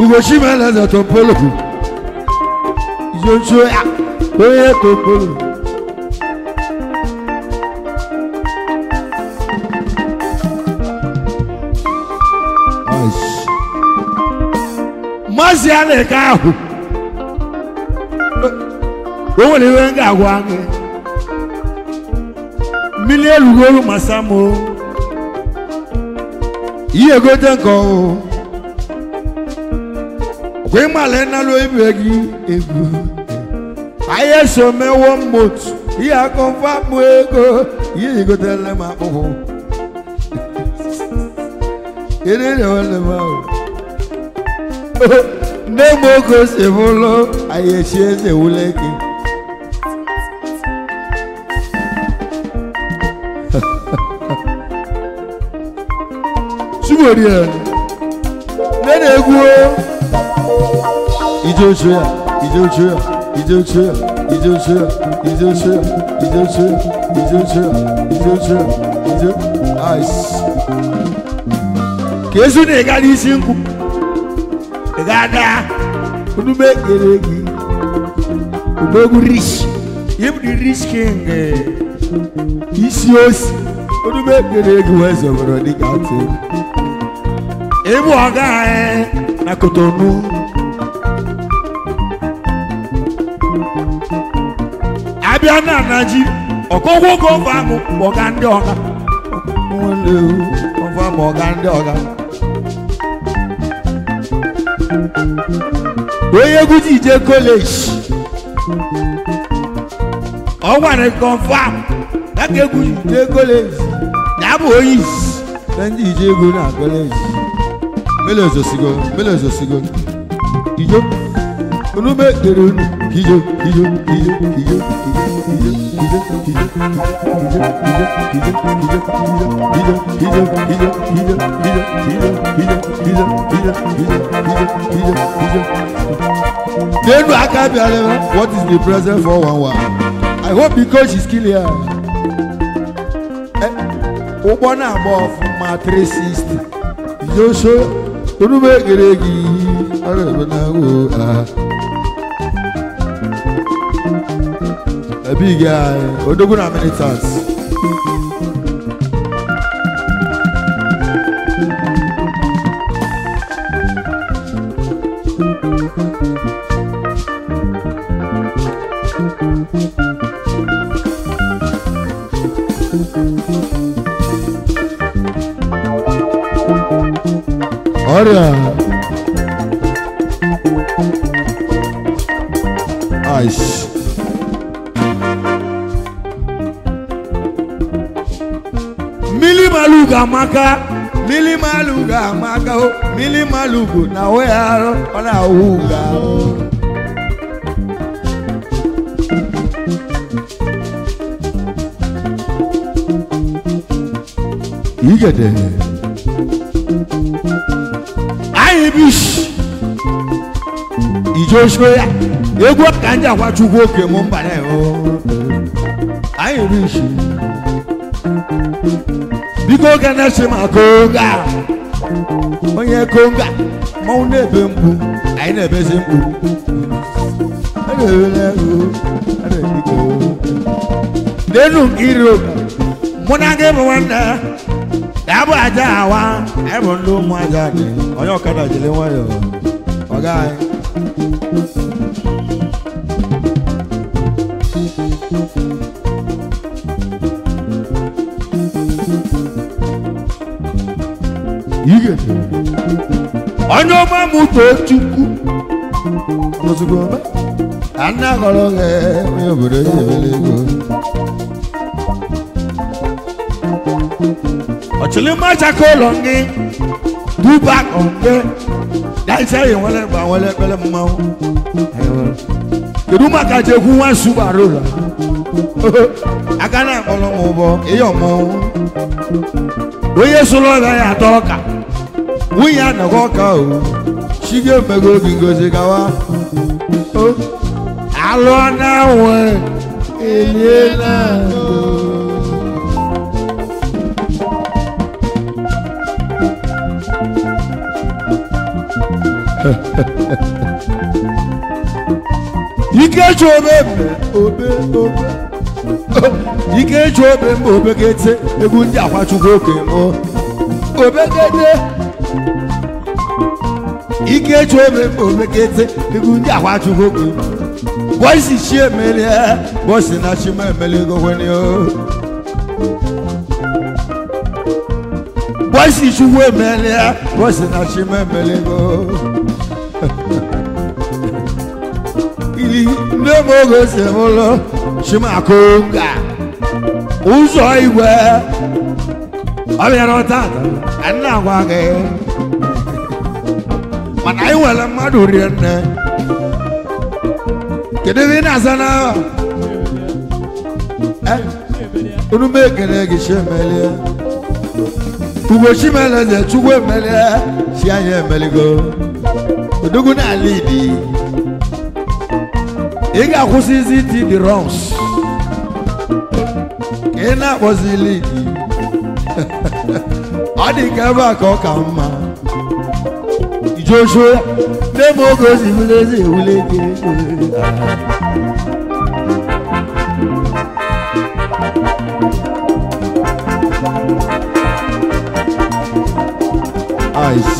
Hiroshima lẹ́sẹ̀ tó ń polo yonso ya oye tó ń polo. mọ́sí alẹ́ káàhù owó ni wọ́n ń gà wá ní mílíọ̀nù lórí màsámù yíyẹ kó tẹ̀ kọ́ o kwemale nalo ibe gị egwu anyị me mewo mmotu ihe akọfa bụ ego ihe igotele m akpụkpụ ererewele m ahụ nne m oge se bụlụ anyị echi eze wule gị chimorie nne na-egwu İdiyorsun, idiyorsun, idiyorsun, idiyorsun, idiyorsun, idiyorsun, idiyorsun, idiyorsun, idiyorsun. Ice. Kesu ne gani sinku? Gada. Bunu bekleyeki. Ubogu rich. Him the rich king. Isios. Bunu bekleyeki wese bunu dikati. Ebu aga eh. Na kotonu. abịa na anaji ọkọgwụ oge ọba ahụ ọga ndị ọga ọga ndị ọga onye egwu ije kọleji ọ nwere kọnfam daka egwu ije kọleji na-abụ onye na ije egwu na kọleji. olúmọ èdèrè nù iyọ iyọ iyọ iyọ iyọ iyọ iyọ iyọ iyọ iyọ iyọ iyọ iyọ iyọ iyọ iyọ nínú akábíyàrá what is the present for one one i hope the coach is clear ụgbọ na-agba ọfụma 360 yoso onugbu egere gị ọrụ ebe na-agwụ ha big guy odoguna militants. Olha. Ai. ga-amaka mmiri malụ ga-amaka mmiri oh, na weghara ọ na-awụ o ahụ igede anyị bụ isi egwu ka ndị akwachukwu oke mo mba na oh. anyị bikoga na-echema konga, onye konga mmanwụ na-ebe mkpu anyị na-ebezi mkpu n'elu nke iri mụ na gị bụ nwanne ya bụ aja awa anyị bụ ndị ụmụ aja onye ọkada jiri nwayọọ ọ gaghị igezi onye ọma mụta chukwu ozugbo anaghọrọ gị onye obodo ya ebele ego ọchịlịmachaka ụlọ gị duba nke daịsa yi nwere gba nwere ekpere mmanwụ kedu maka jekwu nwa subara ụlọ aka na-akpọrọ m ụbọ ihe ọmọnwụ onye sụrụ ọga ya atọ ọka nwunye anọkwa ọka o chige mego obi ngozi gawa alụọ na nwe eliela ikechi obe obe ike eji obe mba obegete egwu ndị akwachukwu okenye obe obegete ike ju ome mgbe omekete egwu ndị ahụ ajụghị okwu bọisi chi emelie bọsi na chima emelego wenio bọisi chukwu emelie bọsi na chima emelego ili ndị mogo si ụlọ chimakonga ụzọ igwe ọbịara tata nna agwa gị mana anyị nwere mmadụ rie nne kedu unu m ekele gị chi emelie ugbo chimeleze chukwu emelie chi anyị emeligo odogwu n'ala idi ị ga-akwụsịzi iti the wrongs ka adịkaba ka ọ ka mma joshua lee ma oge o si wule eze ewule gị eyes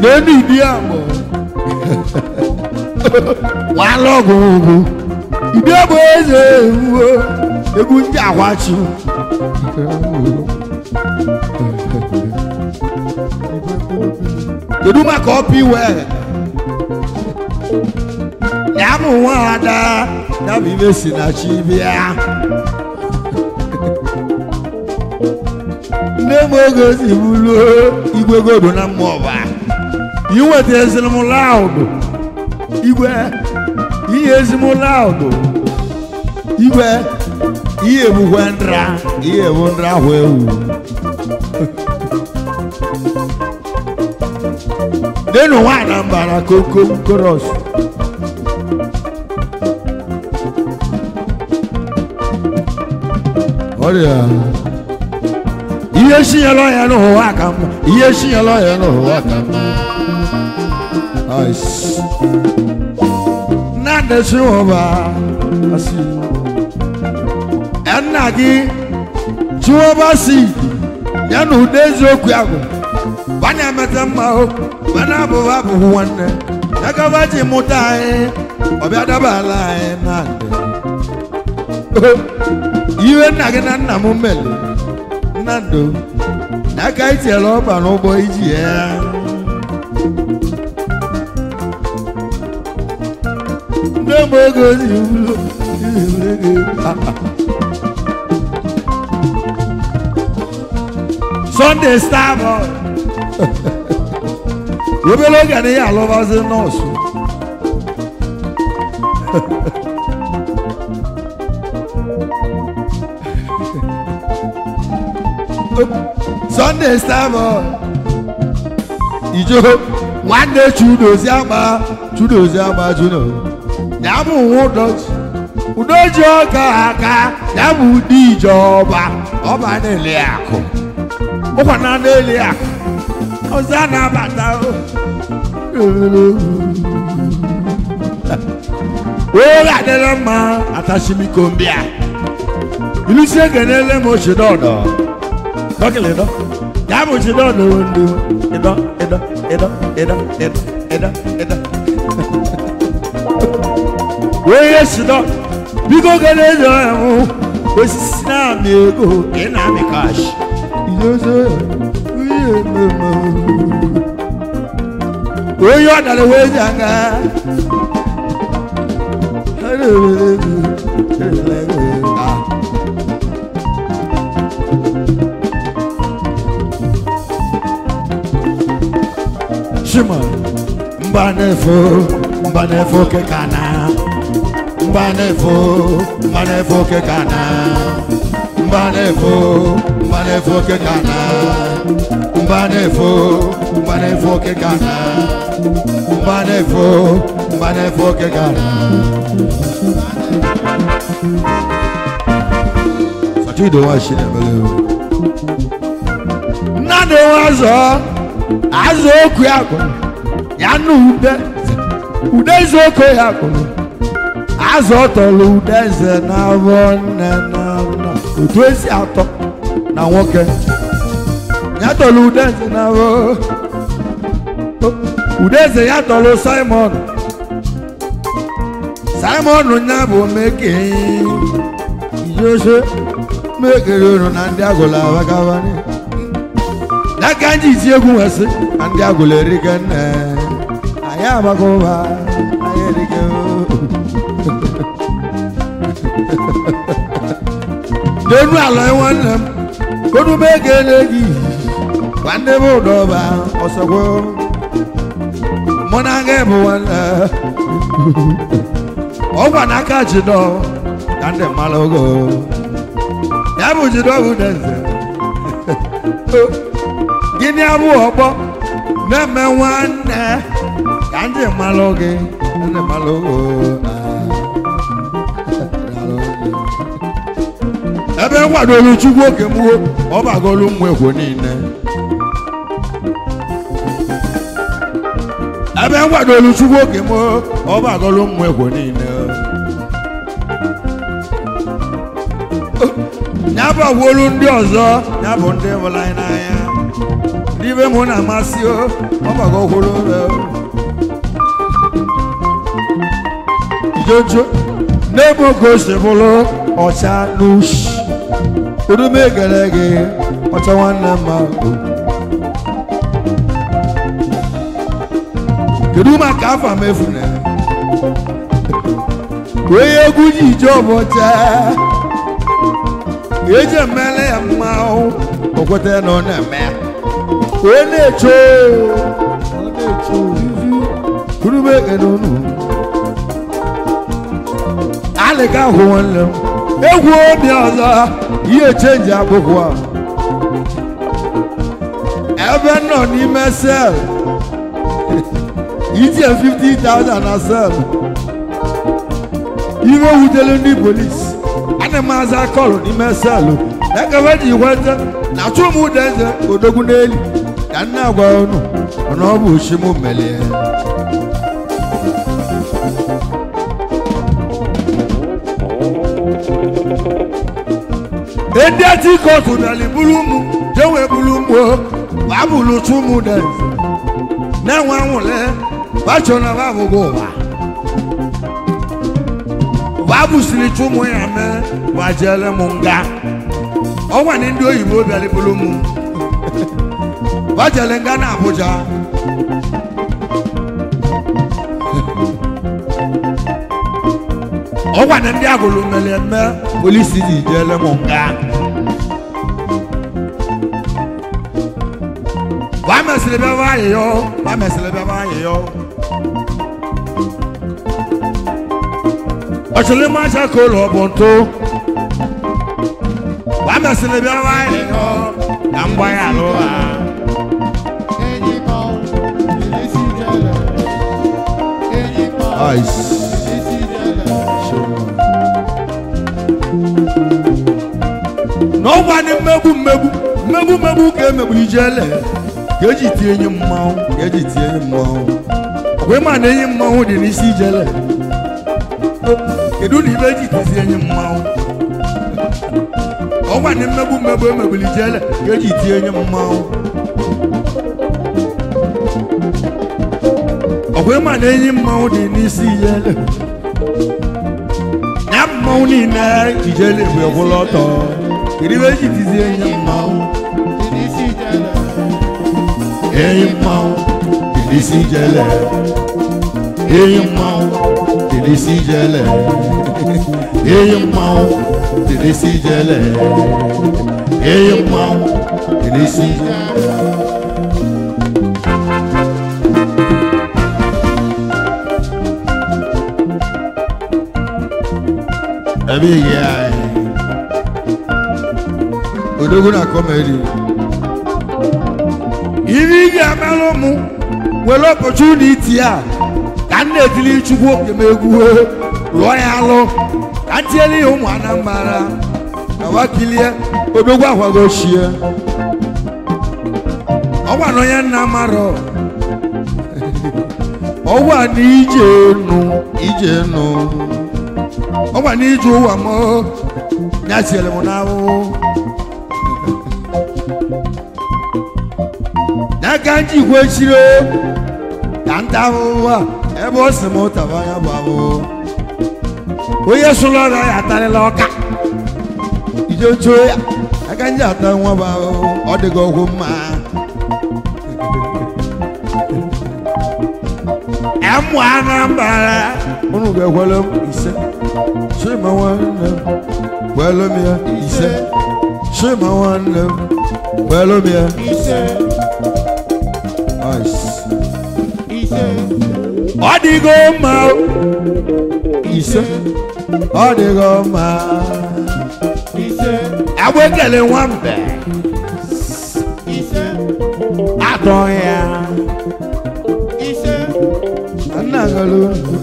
n'enu ibi agbọ wàá lọgùn ògùn ibi egwu ndị akwachi kedu maka ọpụ iwe ya mụ nwa ada ya bụ ibe si na chi bịa nne m oge si bụrụ igwe godo na mmụọ ba iweta ezimụlọ ahụ igwe ihe ezimụlọ ahụ igwe iye mu hwe nra iye mu nra hwe wu denu wa anambra koko koros ọrịa ihe si ya lọ ya n'ụwa ka mma ihe si ya lọ ya n'ụwa ka mma na-adesi ya nna gị jụọba si ya na ụda eziokwu ahụ bana emeta mma o mana abụghị abụghị nwanne ya gaba ji mụta anyị ọbịa daba ala anyị na iwe nna gị na nna m mere Nna nnando n'aka itinyere ọba n'ụgbọ iji ya ndị mgbe ego zi ụlọ Sunday star boy. Webe ló gẹ̀ ní àlọ́bàṣe náà sùn. Sunday star boy. Ìjó nwanne Chudozi ama Chudozi ama Juno. Nyabụ nwa ụdọchi. Udoji ọka aka nyabụ ndị ìjọba ọba na-ele akụ. Opa e e e na anụ elu ya ọzọ a na-abata oge adịla mma atachimiko mbịa mo egenele m ochidodo dọkịlịdọ ya bụ ochidodo edo edo edo edo edo edo edo. We onye sidọ biko gele edo osisi na-amị ego ị na-amị kash dozo uye mama oyo adale wezanga ah. Shima mbanefo mbanefo kekana mbanefo mbanefo kekana Mbanefo, mbanefo ke kana. Mbanefo, mbanefo ke kana. Mbanefo, mbanefo ke kana. Fati do wa shine bele. Na do wa zo. Azo ku akọ. Ya nu ude. Ude zo ko ya akọ. Azo tolu ude ze na wonena otu esi atọ na nwoke ya tọrọ udeze na udeze ya tọrọ simon simon ya bụ meke ijose mekere unu na ndị agụla abakabani ya ka anyị isi egwu nwesị na ndị agụla erike nne anyị amaka anyị erike denu ala nwanne m kodube ga-ele gị nwanne m ụdọba ọsọgwụ. mụ na aga bụ nwanne ọgwa n'aka jidọ ka ndị mmadụ ogo ya bụ jidọ bụ neze gịnị abụ ọgbọ na-eme nwanne ka ndị mmadụ gị ndị mmadụ ogo ebe nkwadoro chukwu oge mgbuo ọ bagolu mmekwo niile ebe nkwadoro chukwu oge mgbuo ọ bagolu mmekwo niile nyabagwolu ndị ọzọ ya bụ ndị hụrụ anyị n'anya ndị be m na-amasị ọ bagogwolu ijojo n'ebe oge o bụrụ ọcha n'ushi udume gere gị ọcha nwanne mma kedu maka afa mefune onye egwu ji ije ọbọcha eji emele ya mma okwete na ọ na-eme onye na-echo udume gere unu alịga hụ nwanne egwu obi ọzọ ihe chenji akwụkwọ ebe nọ n'ime sel itinye 50,000 na sel iwe wutere ndị polisi ana m aza kọlụ n'ime sel ekebe ji kwete na chụmụdenze odogwu n'elu ka nne agwa ọnụ ọ na ọ bụ ochimu melie edetikotunali buru ụmụ jewe buru mgbo abụlutu ụmụ de na-enwe nwụle wa bu ụwa babụsiri chụmụ ya mee gbajele m nga ọnwa ndị oyibo bịaliburu mụ bajele nga na Abuja ọkwa na ndị agụlụ mere eme polisi ji jere m nga wamesịrị bịa wayịyọ wamesịrị bịa wayịyọ ọchịrị mmaja ka ụlọ bụ ntụ wamesịrị bịa wayịyọ na mgbagha alụ ha Ice. gbanị mmegbu mmegbu mmegbu mmegbu ka emegbu ijele ka eji tie enyi mmanwụ ka eji tie enyi mmanwụ wee ma na enyi mmanwụ dị n'isi ijele kedu na ibe eji tizi enyi mmanwụ ọ gbanị mmegbu mmegbu emegbuli ijele ka eji tie enyi mmanwụ ọkwee ma na enyi mmanwụ dị n'isi ijele ya mmanwụ niile ijele mgbe gwụla ọtọ iribeji tizi enye mmanwụ enyi mmanwụ dilisi jele enyi mmanwụ dilisi jele enyi mmanwụ dilisi jele enyi mmanwụ dilisi jele Amiga. odogwu na-akọ ma eri ihe ị ga-amalụ mụ were opportunity a ka m na-etili chukwu oke m egwu lụọ ya alụ ka m tiere ya ụmụ anambra awakilie odogwu ahwagochie ọgbana onye nna marọ ọgwa na ije nụ ije nụ ọgwa na ije ụwa m ya tiere m n'ahụhụ kanji kwechiro ka nta ahụhụ a ebe ọ sị m ụtaba ya bụ ahụhụ onye sụrụ ọrịa ya atarịla ọka ijechuo ya aka nji ata nwa bụ ahụhụ ọ dịghị ọgwụ mma ẹmu anambra unu bẹ wẹlẹ ise sima wẹlẹ wẹlẹ miẹ ise sima wẹlẹ wẹlẹ miẹ ise ọ dịgo mma ise ọ dịgo mma ise agba ekele nwambe ise atọ ya ise nna golu.